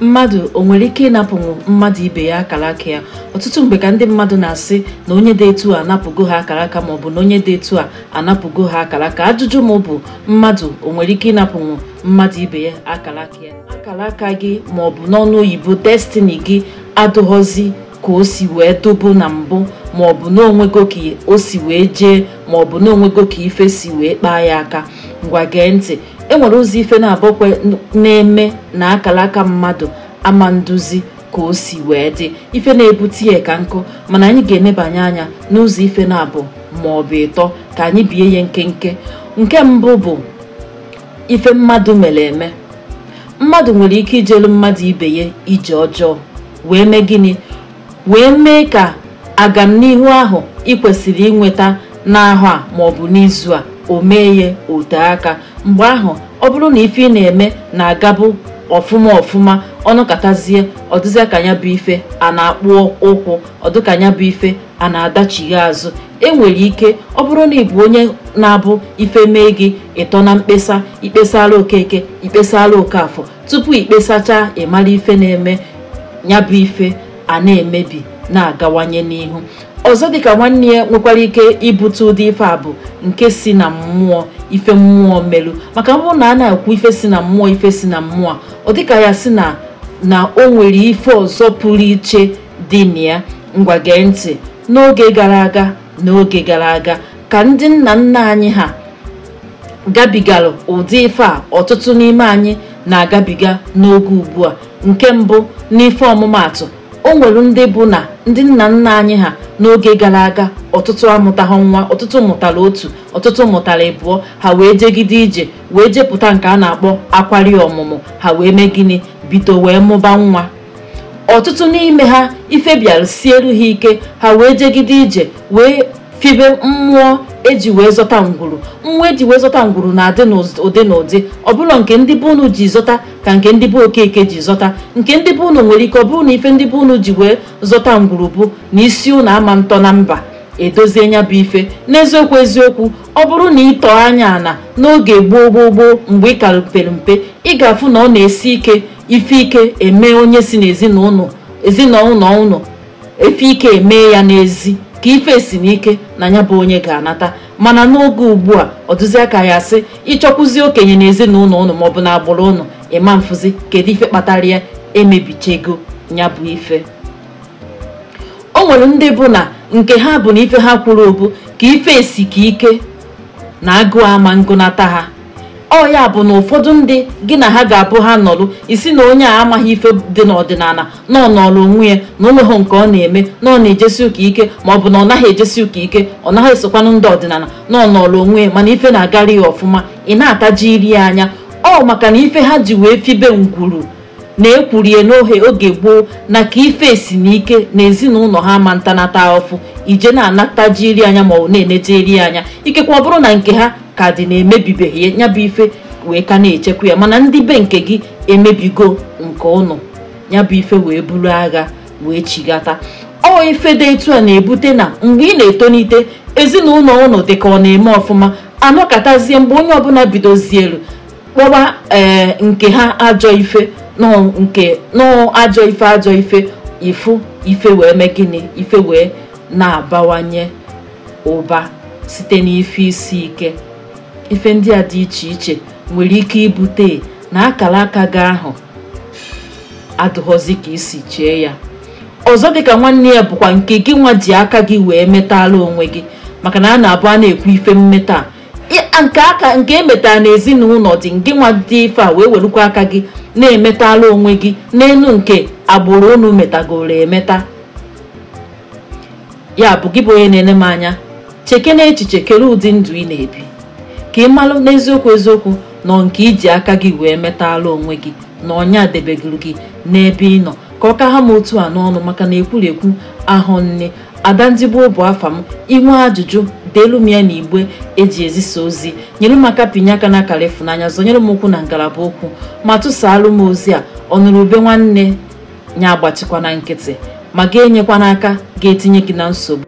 mmadụ o nwere ike ịnapụ mmadụ ibe ya akara aka ya ọtụtụ mgbe ka ndị mmadụ na-asị na onye dị etu a anapụgo ha akara aka maọbụ na onye dị etu a anapụgo ha akara ka ajụjụ m bụ mmadụ o nwere ike ịnapụnwu mmadụ ibe ya akara aka ya akara aka gị maọbụ n'ọnụ oyibo destini gị adụghọzi ka o si wee dobo na mbụ maọbụ n'onwego ka o si wee jee maọbụ n'onwego ka ife si wee kpaa ya aka ngwa gee ntị enwere ụzọ ife na-abọkwe na-eme na akara aka mmadụ ama nduzi ka o si wee dị ife na-ebute ya ka nkụ mana anyị ga-enebanye anya n'ụzọ ife na-abụ ma ọ bụ ịtọ ka anyị bie ya nkenke nke mbụ bụ ife mmadụ mere eme mmadụ nwere ike ijelu mmadụ ibe ya ije ọjọọ wee mee gịnị wee mee ka agamnihu ahụ ị inweta n'ahụ a maọbụ n'izu a o mee ote aka mgbe ahụ ọ bụrụ na ife ị na-eme na-agabụ ọfụma ọfụma ọnụ katazie ọdịzịa ka ya bụ ife a na-akpụ ụkwụ ọdịka ya bụ ife a na-adachighi azụ enwere ike ọ bụrụ na ị bụ onye na-abụ ife mee gị ịtọ na mkpesa ikpesara okeke oke afọ tupu ikpesacha ịmara ife na-eme ya bụ ife a na-emebi na-agawanye n'ihu ọzọ dịka nwanne ya nwekwara ike ibute ụdị ife a bụ nke si na mmụọ ife mmụọ melu maka mbụ na a na akwụ ife si na mmụọ ife si na mmụọ ọ dịka ya si na na o nwere ife ọzọ pụrụ iche dị na ya ngwa gee ntị n'oge gara aga n'oge gara aga ka ndị nna nna anyị ha gabigara ụdị ife a ọtụtụ n'ime anyị na-agabiga n'oge ugbu a nke mbụ n'ife ọmụmaatụ o nwere ndị bụ na ndị nna nna anyị ha n'oge gara aga ọtụtụ amụtaghị nwa ọtụtụ mụtara otu ọtụtụ mụtara ịbụọ ha wee jegide ije wee jepụta nke a na-akpọ akwari ọmụmụ ha wee mee gịnị bido wee mụba nwa ọtụtụ n'ime ha ife bịara ha ike ha wee jegide ije wee fibe mmụọ eji wee zọta ngwuru mmụọ eji wee zọta ngwuru na-adị n'ụdị na ụdị ọbụla nke ndị bụ unu ji zọta ka nke ndị bụ okeke ji zọta nke ndị bụ unu nwere ike ọ bụrụ na ife ndị bụ unu ji wee zọta ngwurugwu na isi unu ama ntọ na mba edozie nya bụ ife n'eziokwu eziokwu ọ bụrụ na ịtọ anya ana n'oge gboo gboo gboo mgbe ị kara mpe ị ga-afụ na ọ na-esi ike ife ike eme onye si n'ezinụlọ ezinụlọ ụnụ efe ike eme ya n'ezi ka ife si n'ike na ya bụ onye ga-anata mana n'oge ugbu a ọ dụzia aka ya sị ịchọkwuzi okenye na ezinụlọ ụnụ maọbụ na agbụrụ ụnụ ịma mfụzi kedu ife kpatara ya e ego ya bụ ife o nwere ndị bụ na nke ha bụ na ife ha kwuru obu ka ife esi ka ike na agụụ ama ngụnata ha ọ ya bụ na ụfọdụ ndị gị na ha ga-abụ ha nọlụ isi na onye a amaghị ife dị n'ọdịnala na ọ nọrọ onwe ya na onweghị nke ọ na-eme na ọ na-ejesi ụka ike ma ọ bụ na ọ naghị ejesi ụka ike ọ naghị esokwanụ ndị ọdịnala na ọ nọrọ onwe ya mana ife na-agara ya ọfụma ị na-ataji iri anya ọ maka na ife ha ji wee fibe ngwuru na-ekwurie n'ohe oge gboo na ka ife si n'ike na ezinụlọ ha ma ntanata ọfụ ije na jiri anya maọbụ na-enejeri anya ikekwa ọ bụrụ na nke ha ka dị na-emebibeghị ya bụ ife wee ka na-echekwa ya mana ndị be nke gị emebigo nke ụnụ ya bụ ife wee buru agha wee chigata ọ ife dị etu a na-ebute na mgbe ị na-etonite ezinụlọ ụnụ ka ọ na-eme ọfụma anọkatazie mgbe onye ọbụla bidozielu kpọba ee eh, nke ha ajọ ife ajọ ife ajọ ife ifu ife wee mee gịnị ife wee na-abawanye ụba site n'ife isi ike ife ndị a dị iche iche nwere ike ibute na akara aka gị ahụ adụghọzi ka isi chee ya ọzọ ka nwanne ya bụkwa nke gị nwa ji aka gị wee metala onwe gị maka na a na-abụ a na-ekwu ife mmeta nke aka nke emetara n'ezinụlọ dị ndị nwa dị ife a wee werukwa aka gị na-emetala onwe gị n'elu nke agbụrụ unu metagoro emeta ya bụ gị bụ onye na-ele m anya cheke na echiche kere ụdị ndụ ị na-ebi ka ị malụ n'eziokwu eziokwu nọ nke iji aka gị wee metala onwe gị na ọnya debegoro gị n'ebe ị nọ ka ọ ka ha m otu a n'ọnụ maka na ekwurekwu ahụ nne ada adandigbuo bụ afa m inwe ajụjụ deelu m ya na igbe eji ezisa ozi nyere m aka pinye aka na akara ịfụnanya zọnyere m ụkwụ na ngalaba okwu ma tụsaalụ m ozi a ọnụrụ ube nwanne ya agbachikwa na nkịtị ma ga-enyekwa n'aka ga-etinye gị na nsogbu